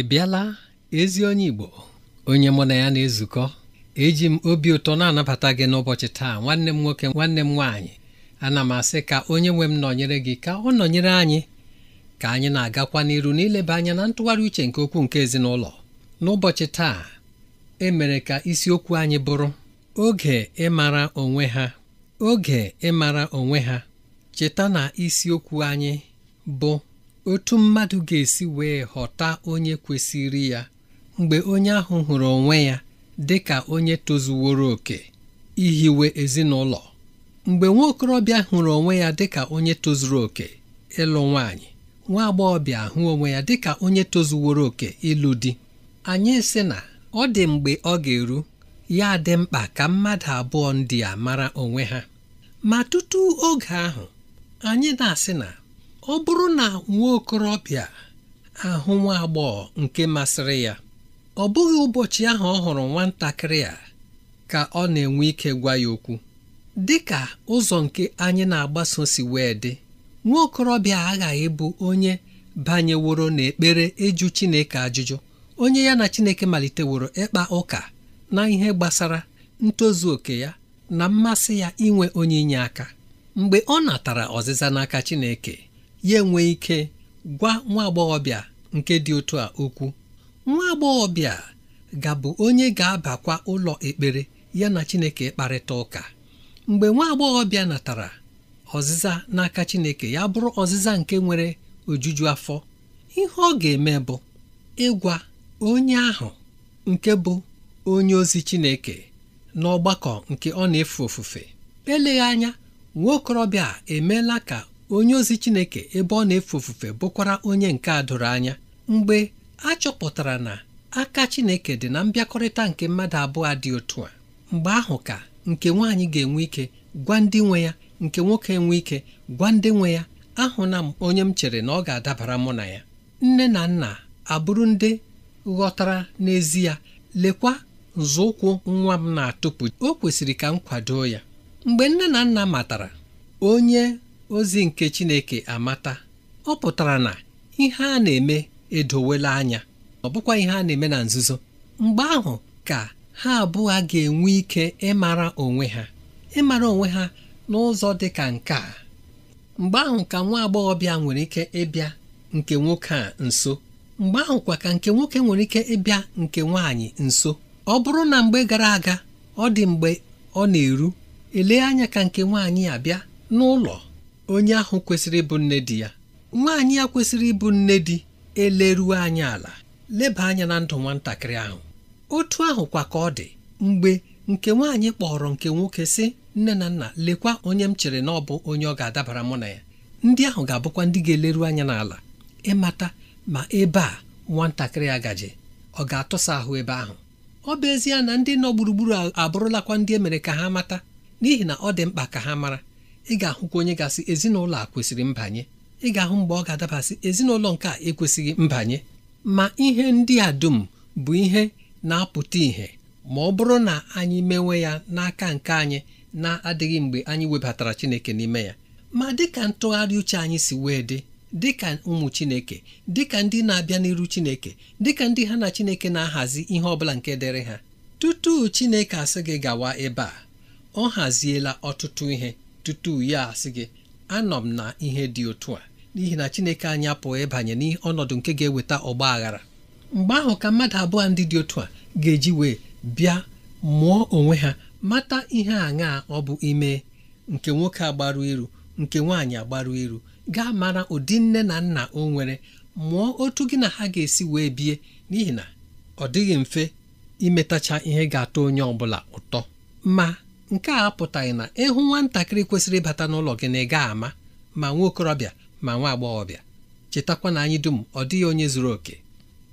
ị bịala ezi onye Igbo onye mụ na ya na-ezukọ eji m obi ụtọ na-anabata gị n'ụbọchị taa nwanne m nwoke nwanne m nwaanyị ana m asị ka onye nwe m nọnyere gị ka ọ nọnyere anyị ka anyị na-agakwa n'iru n'ileba anya na ntụgharị uche nke okwu nke ezinụlọ n'ụbọchị taa emere ka isiokwu anyị bụrụ oge ịmara onwe ha oge ịmara onwe ha cheta na isiokwu anyị bụ otu mmadụ ga-esi wee ghọta onye kwesịrị ya mgbe onye ahụ hụrụ onwe ya dị ka onye tozuworo oke ihiwe ezinụlọ mgbe nwa okorobịa hụrụ onwe ya dị ka onye tozuru oke ịlụ nwaanyị nwa agbọghọbịa hụ onwe ya dị ka onye tozuworo oke ịlụ di anyị sị na ọ dị mgbe ọ ga-eru ya dị mkpa ka mmadụ abụọ ndị a mara onwe ha ma tutu oge ahụ anyị na-asị na ọ bụrụ na nwa okorobịa ahụ nwa agbọghọ nke masịrị ya ọ bụghị ụbọchị ahụ ọ hụrụ nwatakịrị a ka ọ na-enwe ike gwa ya okwu dị ka ụzọ nke anyị na-agbaso si wee dị nwa okorobịa aghaghị bụ onye banyeworo n'ekpere ịjụ Chineke ajụjụ onye ya na Chineke maliteworo ịkpa ụka na ihe gbasara ntozu oke ya na mmasị ya inwe onye inye aka mgbe ọ natara ọzịza n'aka Chineke ya enwe ike gwa nwa agbọghọbịa nke dị otu a okwu nwa agbọghọbịa ga-abụ onye ga-abakwa ụlọ ekpere ya na Chineke kparịta ụka mgbe nwa agbọghọbịa natara ọzịza n'aka Chineke ya bụrụ ọzịza nke nwere ojuju afọ ihe ọ ga-eme bụ ịgwa onye ahụ nke bụ onye ozi Chineke n'ọgbakọ nke ọ na-efe ofufe eleghị anya nwa okorobịa emeela ka onye ozi Chineke ebe ọ na-efe ofufe bụkwara onye nke a doro anya mgbe a chọpụtara na aka Chineke dị na mbịakọrịta nke mmadụ abụọ dị otu a mgbe ahụ ka nke nwaanyị ga-enwe ike gwa ndị nwe ya nke nwoke enwe ike gwa ndị nwe ya ahụna m onye m chere na ọ ga-adabara mụ na ya nne na nna abụrụ ndị ghọtara n'ezie lekwa nzọụkwụ nwa m na-atụpụ o kwesịrị ka m kwado ya mgbe nne na nna matara onye ozi nke Chineke amata ọ pụtara na ihe a na-eme edowela anya ọ bụkwa ihe a na-eme na nzuzo mgbe ahụ ka ha abụọ ga-enwe ike ịmara onwe ha ịmara onwe ha n'ụzọ dị ka nke a mgbe ahụ ka nwa agbọghọbịa nwere ike ịbịa nke nwoke a nso mgbe ahụ kwa ka nke nwoke nwere ike ịbịa nke nwaanyị nso ọ bụrụ na mgbe gara aga ọ dị mgbe ọ na-eru elee anya ka nke nwaanyị abịa n'ụlọ onye ahụ kwesịrị ịbụ nne di ya nwaanyị ya kwesịrị ịbụ nne di eleruo anyị ala leba anya na ndụ nwatakịrị ahụ otu ahụ kwa ka ọ dị mgbe nke nwaanyị kpọrọ nke nwoke sị nne na nna lekwa onye m chere na ọ bụ onye ọ ga-adabara mụ na ya ndị ahụ ga-abụkwa ndị ga-eleru anya n'ala ịmata ma ebe a nwatakịrị gaji ọ ga-atụsa ahụ ebe ahụ ọ bụ ezie na ndị nọ gburugburu abụrụlakwa ndị emere ka ha mata n'ihi na ọ dị mkpa ka ha mara ị ga-ahụkwa onye gasị ezinụlọ a kwesịrị mbanye ị ga-ahụ mgbe ọ ga-adabasị ezinụlọ nke a ekwesịghị mbanye ma ihe ndị a dum bụ ihe na-apụta ìhè ma ọ bụrụ na anyị mewe ya n'aka nke anyị na-adịghị mgbe anyị webatara Chineke n'ime ya ma dịka ntụgharị uche anyị si wee dị dịka ụmụ Chineke dịka ndị na-abịa n'iru Chineke dịka ndị ha na Chineke na-ahazi ihe ọ bụla nke dịrị ha tutu Chineke asị gị gawa ebe a ọ haziela ọtụtụ ihe tutu ya asị gị anọ m na ihe dị otu a n'ihi na Chineke anyị apụghị ịbanye n'ọnọdụ nke ga-eweta ọgba aghara mgbe ahụ ka mmadụ abụọ ndị dị otu a ga-eji wee bịa mụọ onwe ha mata ihe aṅaa ọ bụ ime nke nwoke agbaru iru nke nwaanyị agbaru iru gaa mara ụdị nne na nna o nwere mụọ otu gị na ha ga-esi wee bie n'ihi na ọ dịghị mfe imetacha ihe ga-atọ onye ọ bụla ụtọ ma nke a apụtaghị na ịhụ nwatakịrị kwesịrị ịbata n'ụlọ gị na ị ga ama ma nwa okorobịa ma nwa agbọghọbịa chetakwa na anyị dum ọ dịghị onye zuru oke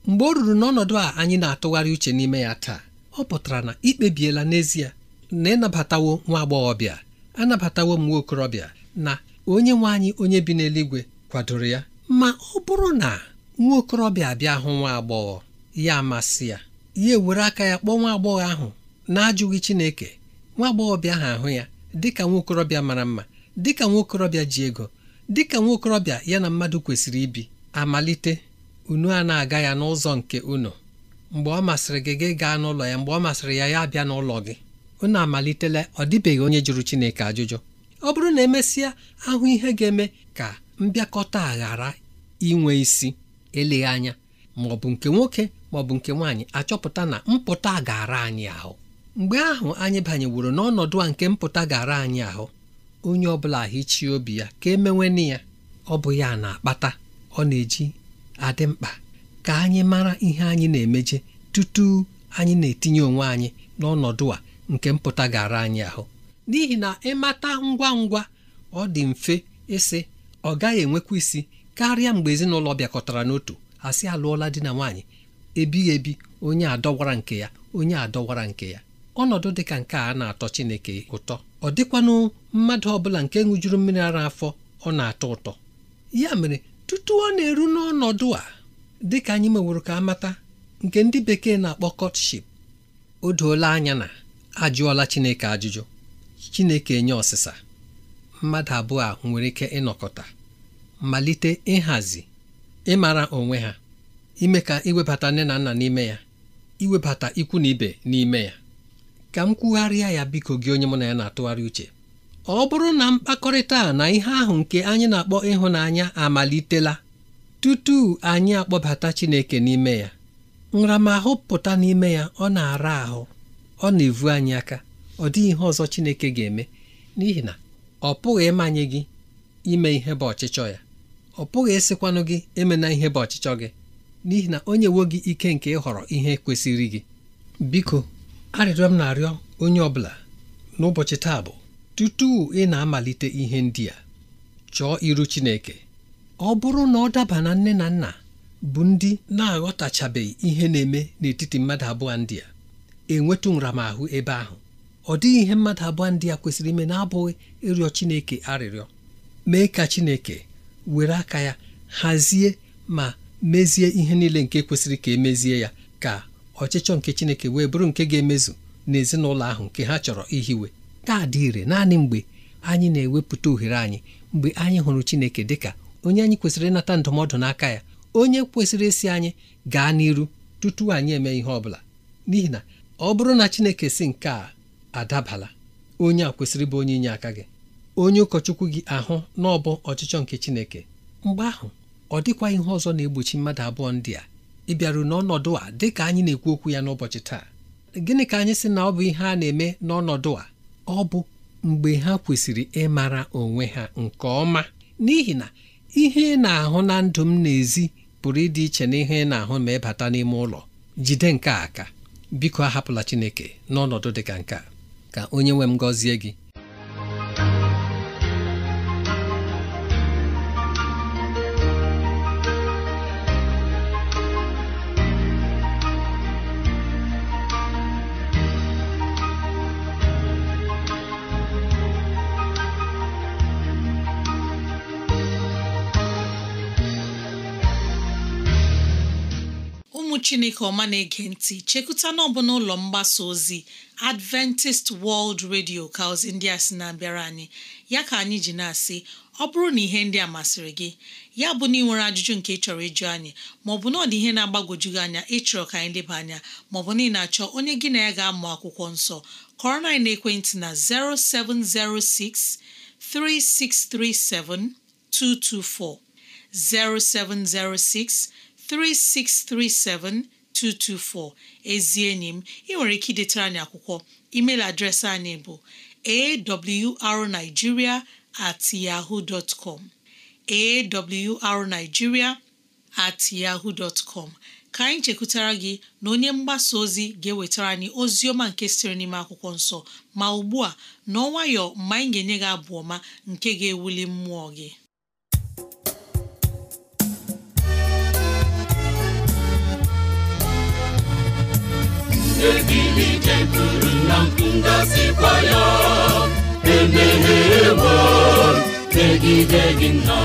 mgbe ọ ruru n'ọnọdụ a anyị na-atụgharị uche n'ime ya taa ọ pụtara na ikpebiela n'ezie na ịnabatawo nwa agbọghọbịa anabatawo m nwa okorobịa na onye nwe anyị onye bi n'eluigwe kwadoro ya ma ọ bụrụ na nwa okorobịa abịa hụ nwa agbọghọ ya amasị ya ya ewere aka ya kpọọ nwa agbọghọ ahụ na-ajụghị Chineke nwa agbọghọbịa ahụ ahụ ya dịka nwaokorobịa mara mma dịka nwaokorobịa ji ego dịka nwaokorobịa ya na mmadụ kwesịrị ibi amalite unu a na-aga ya n'ụzọ nke unu mgbe ọ masịrị gị gị gaa n'ụlọ ya mgbe ọ masịrị ya ya bịa n'ụlọ gị unu amalitela ọ dịbeghị onye jụrụ Chineke ajụjụ ọ bụrụ na emesịa ahụ ihe ga-eme ka mbịakọta ghara inwe isi eleghị anya ma ọ bụ nke nwoke ma nke nwaanyị achọpụta na mpụta gara anyị ahụ mgbe ahụ anyị banyeworo n'ọnọdụ a nke mpụta gara anyị ahụ onye ọbụla hichie obi ya ka emewene ya ọ bụ ya na-akpata ọ na-eji adị mkpa ka anyị mara ihe anyị na-emeje tutu anyị na-etinye onwe anyị n'ọnọdụ a nke mpụta gara anyị ahụ n'ihi na ịmata ngwa ngwa ọ dị mfe ịsị ọ gaghị enwekwa isi karịa mgbe ezinụlọ bịakọtara n'otu asị alụọla di na nwaanyị ebighị ebi onye adọwara nke ya onye adọwara nke ya ọnọdụ dị ka nke a na-atọ Chineke ụtọ ọ dịkwanụ mmadụ ọbụla nke ṅụjuru mmiri ara afọ ọ na-atọ ụtọ ya mere tutu ọ na-eru n'ọnọdụ a dị ka anyị meworo ka amata nke ndị bekee na-akpọ kọtship o doola anya na ajụọla Chineke ajụjụ Chineke enye ọsịsa mmadụ abụọ a nwere ike ịnọkọta malite ịhazi ịmara onwe ha ime ka iwebata nne na nna n'ime ya iwebata ikwu na ibe n'ime ya ka m kwugharịa ya biko gị onye mụ na ya na-atụgharị uche ọ bụrụ na mkpakọrịta na ihe ahụ nke anyị na-akpọ ịhụnanya amalitela tutu anyị akpọbata Chineke n'ime ya nramahụ pụta n'ime ya ọ na-ara ahụ ọ na-evu anyị aka ọ dịghị ihe ọzọ Chineke ga-eme n'ihi na ọ pụghị ịmanye gị ime ihe bụ ọchịchọ ya ọ pụghị ịsịkwanụ gị emena ihe bụ ọchịchọ gị n'ihi na onye nyewo gị ike nke ịhọrọ ihe kwesịrị gị biko arịrịọ m na-arịọ onye ọ bụla n'ụbọchị taa bụ tutu ị na-amalite ihe ndị a chọọ iru Chineke ọ bụrụ na ọ daba na nne na nna bụ ndị na-aghọtachabeghị ihe na-eme n'etiti mmadụ abụọ ndị a enwetụ nramahụ ebe ahụ ọ dịghị ihe mmadụ abụọ ndị a kwesịrị ime na-abụghị ịrịọ Chineke arịrịọ mee ka Chineke were aka ya hazie ma mezie ihe niile nke kwesịrị ka emezie ya ka ọchịchọ nke Chineke wee bụrụ nke ga-emezu n'ezinụlọ ahụ nke ha chọrọ ihiwe kaadị ire naanị mgbe anyị na-ewepụta ohere anyị mgbe anyị hụrụ Chineke dịka onye anyị kwesịrị ịnata ndụmọdụ n'aka ya onye kwesịrị esi anyị gaa n'iru tutu anyị eme ihe ọ bụla n'ihi na ọ bụrụ na Chineke si nke a adabala onye a kwesịrị bụ onye inye aka gị onye ụkọchukwu gị ahụ n'ọbụ ọchịchọ nke Chineke mgbe ahụ ọ dịkwa ihe ọzọ na-egbochi mmadụ abụọ ndị a ịbịaru n'ọnọdụ a dị ka anyị na-ekwu okwu ya n'ụbọchị taa gịnị ka anyị sị na ọ bụ ihe a na-eme n'ọnọdụ a ọ bụ mgbe ha kwesịrị ịmara onwe ha nke ọma n'ihi na ihe ị na-ahụ na ndụ m n'ezi pụrụ ịdị iche na ihe ị na-ahụ ma ịbata n'ime ụlọ jide nke a aka biko ahapụla Chineke n'ọnọdụ dị ka nke a ka onye nwe m gọzie gị chineke ọma na-ege ntị chekụta n'ọbụ n'ụlọ mgbasa ozi adventist world radio ka ozi ndị a sị na-abịara anyị ya ka anyị ji na-asị ọ bụrụ na ihe ndị a masịrị gị ya bụ na ị nwere ajụjụ nke ị chọrọ ịjụ anyị maọbụ na ọ dị ihe na-agbagwoju gị anya ịchọrọ ka anyị leba anya maọbụ na ị na-achọ onye gị na ya ga-amụ akwụkwọ nsọ kọrọ na ekwentị na 0706 3637 224 0706 3637224 ezi enyi m ị nwere ike idetara anyị akwụkwọ email adreesị anyị bụ arigiria at at yahoo dot ka anyị chekwutara gị na onye mgbasa ozi ga-ewetara anyị ozi ọma nke siri n'ime akwụkwọ nsọ ma ugbu a n'ọnwayọ mgbe anyị ga-enye gị abụ ọma nke ga-ewuli mmụọ gị ebili jeguru na ngọzikwa ya emeghewo megide gị nna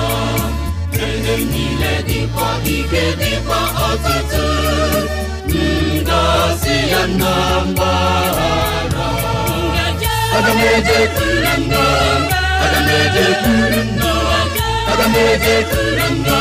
ihe niile dịkwa ike dịkwa ọtụtụ ngọzi ya na mgbahara aga m ejekwuru nna aga m ejekwuru nna aga m ejekwuru nna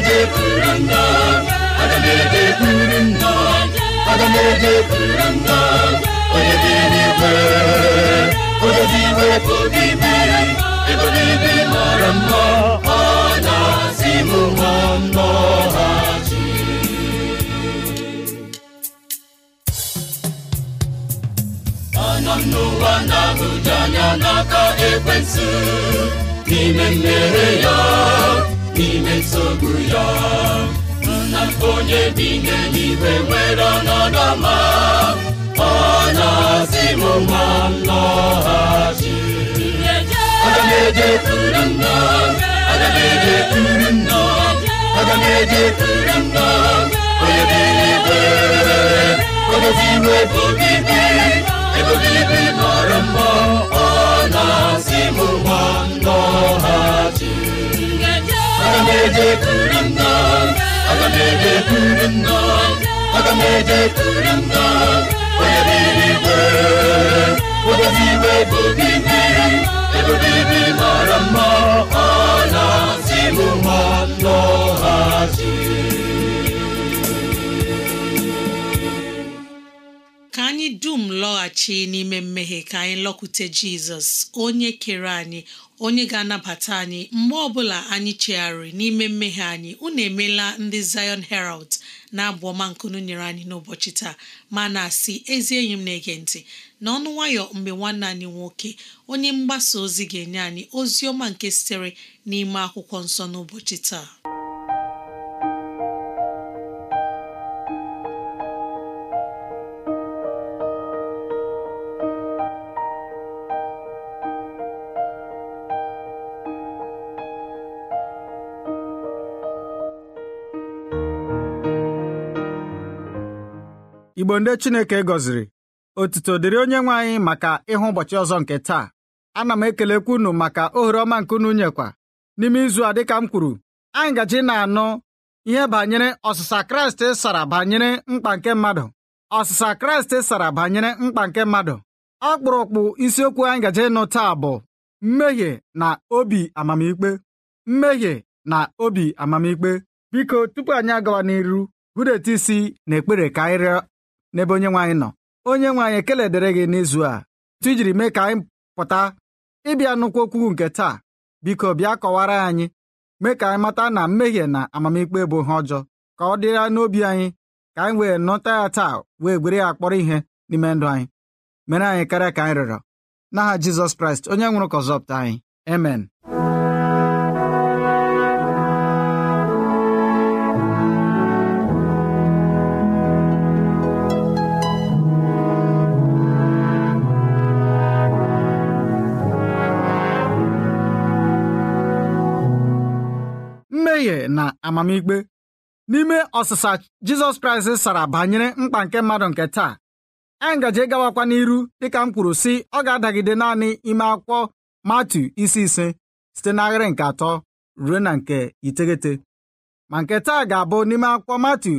aga m ejekwuru nna aga onye dị mara mma ọ na-asị m nwa nnọghachi anọ n'ụwa na n'aka ekwentị n'ime mmehie ya imesogbu ya nna onye bi n'eluigwe nwere ọnọdụ ọma ọ na-asị m ma m lọghachi aga m ejekwuru nna aga m ejekwuru nna aga m ejekwuru nna onye dị n'igwe onye bi iwe bụ bibi ebe bibi mara mma aga onye mara mma ka anyị dum lọghachi n'ime mmehie ka anyị lọkwute jizọs onye kere anyị onye ga-anabata anyị mgbe ọbụla anyị chegharịrị n'ime mmehie anyị unu emela ndị Zion Herald na-abụ ọma nkunu nyere anyị n'ụbọchị taa ma na-asị ezi enyi m na-ege ntị n'ọnụ nwayọ mgbe nwanne anyị nwoke onye mgbasa ozi ga-enye anyị ozi ọma nke sitere n'ime akwụkwọ nsọ n'ụbọchị taa igbo ndị chineke gọziri otuto dịrị onye nwe anyị maka ịhụ ụbọchị ọzọ nke taa ana m ekelekwa unu maka ohere ọma nke unu nyekwa n'ime izu a dịka m kwuru anyị gaji na-anụ ihe banyere ọsịsa kraịst sara banyere mkpa nke mmadụ ọsịsa kraịst sara banyere mkpa nke mmadụ ọkpụrụkpụ isiokwu anyị gaje ịnụ taa bụ mmehie na obi amamikpe mmehie na obi amamikpe biko tupu anyị agawa n'iru hụdeta isi na ekpere ka anyị rịọ n'ebe onye nwaanyị nọ onye nwaanyị ekele dịrị gị n'izu a tụ jiri mee ka anyị pụta ịbịa nnukwu okwu nke taa biko bịa kọwara anyị mee ka anyị mata na mmehie na amamikpe bụ ihe ọjọọ ka ọ dịra n'obi anyị ka anyị wee nọta ya taa wee gwere ya kpọrọ ihe n'ime ndụ anyị mere anyị karịa ka anyị rịọrọ n'aha Jizọs Kraịst onye nwụrụ ka ọzọpụta anyị amen amamikpe n'ime ọsịsa Jizọs Kraịst sara banyere mkpa nke mmadụ nke taa anyị e ngaji gawakwa n'iru dịka m kwuru si ọ ga-adagide naanị ime akwụkwọ Matu isi ise site n'ahịrị nke atọ ruo na nke iteghete ma nke taa ga-abụ n'ime akwụkwọ Matu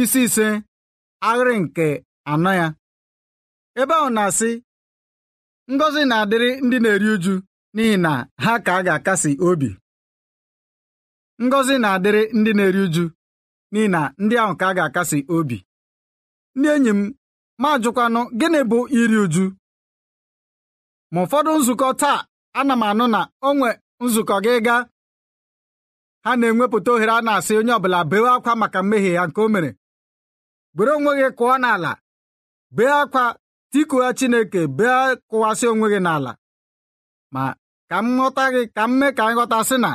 isi ise ahịrị nke anọ ya ebe ahụ na-asị ngozi na-adịrị ndị na-eri uju n'ihi na ha ka a ga-akasi obi ngọzi na-adịrị ndị na-eri uju n'ihi na ndị ahụ ka a ga-akasi obi ndị enyi m ma gịnị bụ iri uju ma ụfọdụ nzukọ taa ana m anụ na onwe nzukọ gị gaa ha na-enwepụta ohere a na-asị onye ọbụla bee akwa maka mmehie ya nke o mere were onwe gị kụọ n'ala bee akwa tikuha Chineke bee kụwasị onwe gị n'ala ma ka m ghọta gị ka m mee ka anyị ghọta sị na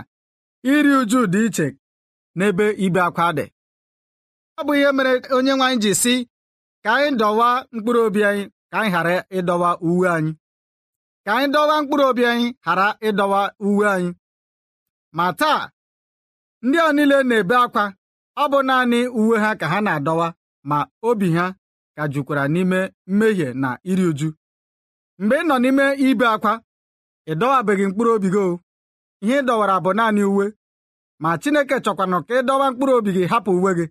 Iri uju dị iche n'ebe ibe akwa dị ọ bụ ihe mere onye nwe anyị ji si ka anyị dọwa mkpụrụ obi anyị ka anyị ghara ịdọwa uwe anyị ka anyị dọwa mkpụrụ obi anyị ghara ịdọwa uwe anyị ma taa ndị a niile na-ebe akwa ọ bụ naanị uwe ha ka ha na-adọwa ma obi ha ka jukwara n'ime mmehie na iri uju mgbe ị nọ n'ime ibe akwa ị dọwabeghị mkpụrụ obi gị ihe ị dọwara bụ naanị uwe ma Chineke chọkwanụ ka ị dọwa mkpụrụ obi gị hapụ uwe gị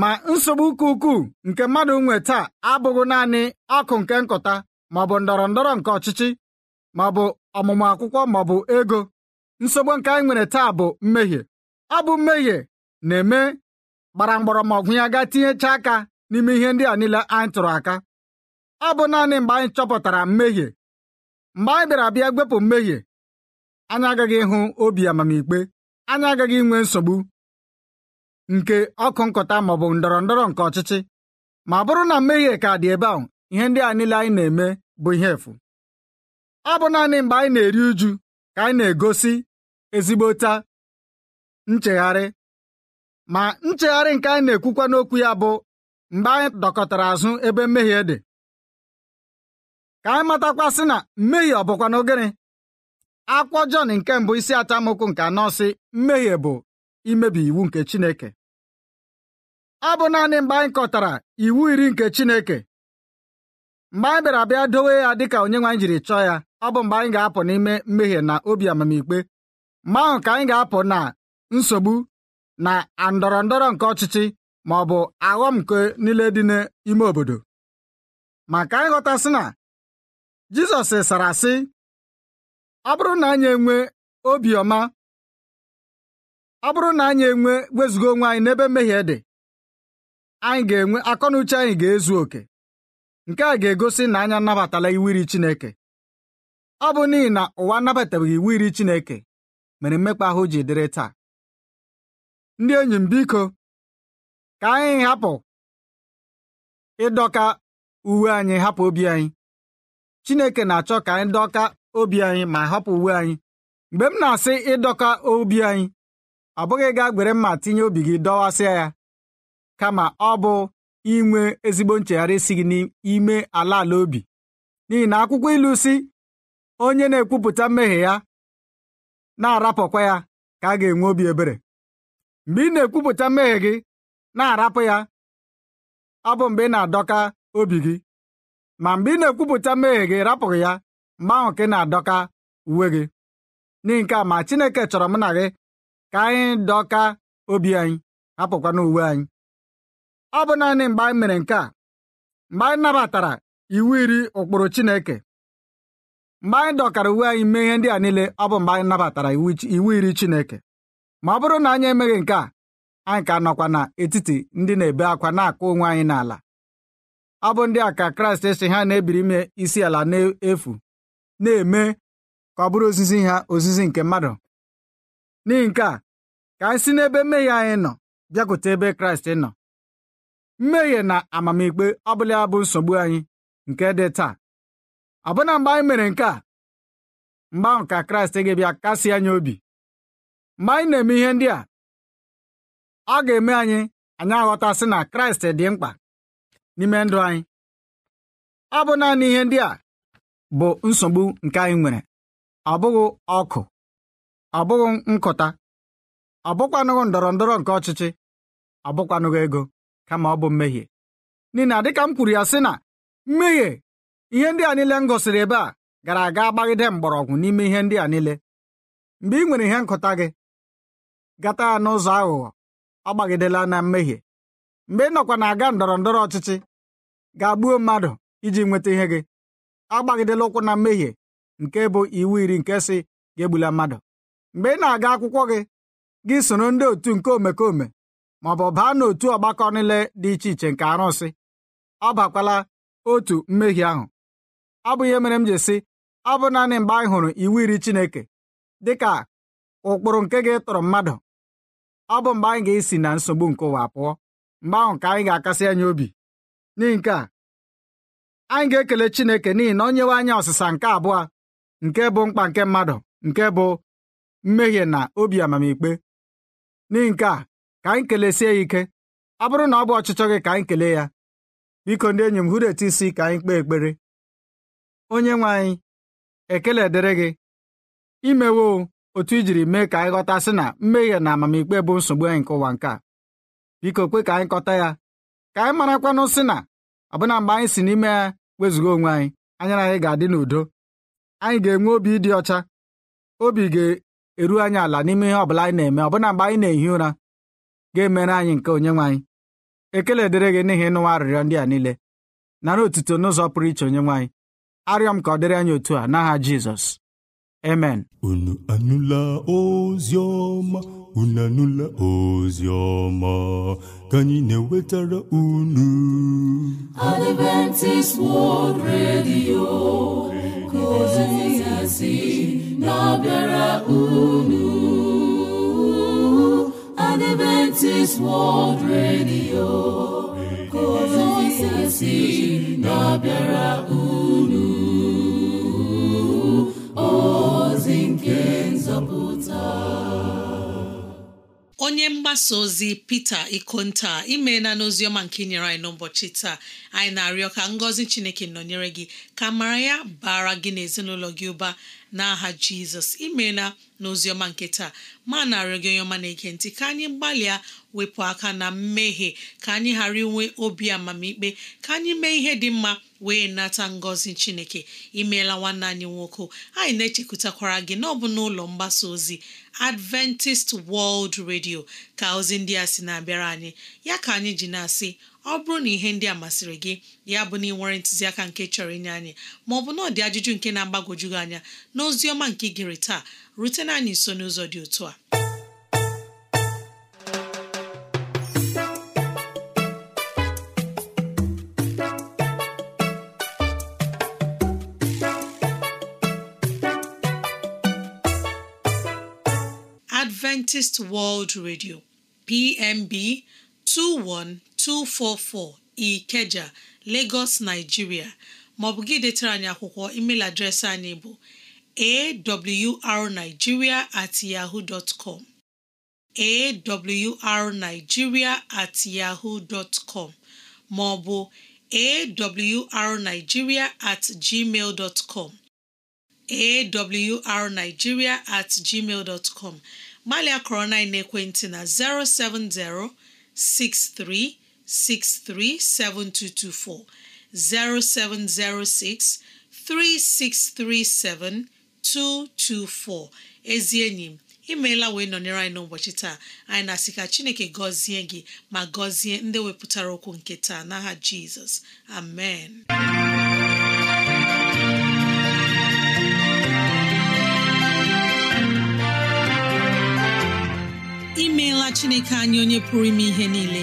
ma nsogbu ụka ukwuu nke mmadụ nwe taa abụghị naanị akụ nke nkụta maọbụ ndọrọ ndọrọ nke ọchịchị maọbụ ọmụmụ akwụkwọ maọbụ ego nsogbu nke anyị nwere taa bụ mmehie ọ bụ mmehie na-eme gbara mgbọrọmọgwụ ya gaa tinyechaa aka n'ime ihe ndị a niile anyị tụrụ aka ọ bụ naanị mgbe anyị chọpụtara mmehie mgbe anyị bịara bịa gwepụ mmehie anyị agaghị ịhụ obi amamikpe anyị agaghị inwe nsogbu nke ọkụ nkọta maọbụ ndọrọ ndọrọ nke ọchịchị ma bụrụ na mmehie ka dị ebe ahụ ihe ndị a niile anyị na-eme bụ ihe efu ọ bụ naanị mgbe anyị na-eri uju ka anyị na-egosi ezigbota nchegharị ma nchegharị nke anyị na-ekwukwa n'okwu ya bụ mgbe anyị dọkọtara azụ ebe mmehie dị ka anyị matakwasị na mmehie ọ bụkwa na akwụkwọ Jọn nke mbụ isi atamokwu nke anọ sị mmehie bụ imebi iwu nke Chineke ọ bụ naanị mgbe anyị kọtara iwu iri nke Chineke mgbe anyị bịara bịa dowe ya dịka onyenwe anyị jiri chọọ ya ọ bụ mgbe anyị ga-apụ n'ime mmehie na obi amamikpe mgbe ahụ ka anyị ga-apụ na nsogbu na ndọrọ ndọrọ nke ọchịchị ma ọ bụ aghọm nke niile dị n'ime obodo ma ka anyị ghọtasị na Jizọs sara sị ọ na anyị enwe obiọma ọ bụrụ na anyị enwe wezuga onwe anyị n'ebe mmehie dị anyị ga-enwe akọnuche anyị ga-ezu oke nke a ga-egosi na anya nnabatala iwu iri Chineke ọ bụ n'ihi na ụwa anabatabeghị iwu iri Chineke mere mmekpa ahụ ji dịrị taa ndị enyi m biko ka anyị hapụ ịdọka uwe anyị hapụ obi anyị Chineke na-achọ ka anyị dọka obi anyị ma hapụ uwe anyị mgbe m na-asị ịdọka obi anyị ọ bụghị gaa gwere mma tinye obi gị dọwasịa ya kama ọ bụ inwe ezigbo nchegharị si gị n'ime ala ala obi n'ihi na akwụkwọ ilu si onye na-ekwupụta mmehie ya na-arapụkwa ya ka a ga-enwe obi ebere mgbe ị na-ekwupụta mmehie gị na-arapụ ya ọ bụ mgbe ị na-adọka obi gị ma mgbe ị na-ekwupụta mmehie gị rapụghị ya mgbanwe nke na-adọka uwe gị n'ihi nke a ma Chineke chọrọ m na gị ka anyị dọka obi anyị hapụkwana uwe anyị ọ bụ naanị mgbe anyị mere nke a mgbe anyị nabatara iwu iri ụkpụrụ Chineke mgbe anyị dọkara uwe anyị mee ihe ndị a niile ọ bụ mgbe anyị nabatara iwu iri Chineke ma ọ bụrụ na anyị emeghị nke a anyị ka nọkwa n'etiti ndị na-ebe akwa na-akụ onwe anyị n'ala ọ bụ ndị a ka Kraịst si ha na-ebiri ime isi ala n'efu na-eme ka ọ bụrụ ozizi ha ozizi nke mmadụ n'ihi nke a ka anyị si n'ebe mmehie anyị nọ bịakwute ebe kraịst nọ mmehie na amamikpe ọbụla bụ nsogbu anyị nke dị taa ọbụna mgbe anyị mere nke a mgbe ahụ ka kraịst ga-abịa kasị anyị obi mgbe anyị na-eme ihe ndị a ọ ga-eme anyị anyị aghọtasị na kraịst dị mkpa n'ime ndụ anyị ọ bụ naanị ihe ndị a bụ nsogbu nke anyị nwere ọ bụghị ọkụ ọ bụghị nkụta ọ bụkwanụghị ndọrọ ndọrọ nke ọchịchị ọ bụkwanụghị ego kama ọ bụ mmehie n'ihi na dịka m kwuru ya sị na mmehie ihe ndị a niile m gosiri ebe a gara aga gbagide mgbọrọgwụ n'ime ihe ndị a niile mgbe ị nwere ihe nkụta gị gata ya n'ụzọ aghụghọ ọ gbagidela na mmehie mgbe ị nọkwa na-aga ndọrọ ndọrọ ọchịchị ga-agbuo mmadụ iji nweta ihe gị agbagidela ụkwụ na mmehie nke bụ iwu iri nke si ga egbula mmadụ mgbe ị na-aga akwụkwọ gị gị soro ndị otu nke omekome maọbụ bụ baa n'otu ọgbakọ niile dị iche iche nke arụsị abakwala otu mmehie ahụ bụ ihe mere m ji sị abụ naanị mgbe anyị hụrụ iwu iri Chineke dị ka ụkpụrụ nke gị tụrụ mmadụ abụ mgbe anyị ga-esi na nsogbu nke ụwa pụọ mgbe ahụ ka anyị ga-akasị anya obi n'ihi nke a anyị ga-ekele Chineke n'ihi na onyewe nyewe anyị ọsịsa nke abụọ nke bụ mkpa nke mmadụ nke bụ mmehie na obi amamikpe n'ihi nke a ka anyị kelesie ya ike ọ bụrụ na ọ bụ ọchịchọ gị ka anyị kele ya biko ndị enyi m hụrụ etu isi ka anyị kpee ekpere onye nwe anyị ekele dịrị gị imewo otu i jiri mee ka anyị ghọta sị na mmehie na amamikpe bụ nsogbu anyị nke ụwa nke a biko kwe ka anyị kọta ya ka anyị marakwanụ sị na ọbụna mgbe anyị si n'ime ya wezụga onwe anyị anya anyị ga-adị n'udo anyị ga-enwe obi ịdị ọcha obi ga-eru anyị ala n'ime ihe ọbụla anyị na-eme ọbụna mgbe anyị na-ehi ụra ga-emere anyị nke onye nwaanyị ekele dịrị gị n'ihi ịnụwa arịrịọ ndị a niile nara otuto n'ụzọ pụrụ iche onyenwe arịọ m ka ọ dịrị anyị otu a n'aha Jizọs amen unu anụla unu anụla ozi ọma ka anyị na-ewetara unu Adventist World Radio ka ozi ya si na-abịara unu Adventist World Radio ka ozi ya si na-abịara unu onye mgbasa ozi Peter Ikonta imeela n'oziọma nke inyere anyị n'ụbọchị taa anyị na-arịọ ka ngọzi Chineke nọnyere gị ka mara ya bara gị na ezinụlọ gị ụba n'aha jizọs imeela ọma nke taa ma narị gị onye ọma na-ege ntị ka anyị gbalịa wepụ aka na mmehie ka anyị ghara inwe obi amamikpe ka anyị mee ihe dị mma wee nata ngọzi chineke imeela nwanne anyị nwoke anyị na-echekwutakwara gị n'ọbụ n'ụlọ mgbasa ozi Adventist World redio ka ozi ndị a si na-abịara anyị ya ka anyị ji na-asị ọ bụrụ na ihe ndị a masịrị gị ya bụ na ị nwere ntụziaka nke chọrọ inye anyị ma ọ bụ na ọ dị ajụjụ nke na agbagojugị anya na ọma nke gịrị taa rutena anyị nso n'ụzọ dị otu a Adventist World Radio PMB 21 244 Ikeja Lagos Nigeria maọbụ gị detara anyị akwụkwọ email adreesị anyị bụ awrnigeria at yahoo dot com awrnigeria at yahoo dot com maọbụ awrnigeria at gmail dot com awrnigeria at gmail dot com na ekwentị na 070 63 637224 7224 0706 3637224 ezi enyi m imeela wee nọnyere anyị n'ụbọchị taa anyị na-asị ka Chineke gọzie gị ma gọzie ndị wepụtara okwu nke taa n'aha Jizọs amen imeela Chineke anyị onye pụrụ ime ihe niile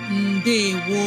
ndewo